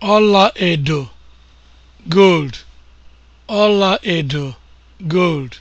ọla edo (gold), ọla edo (gold)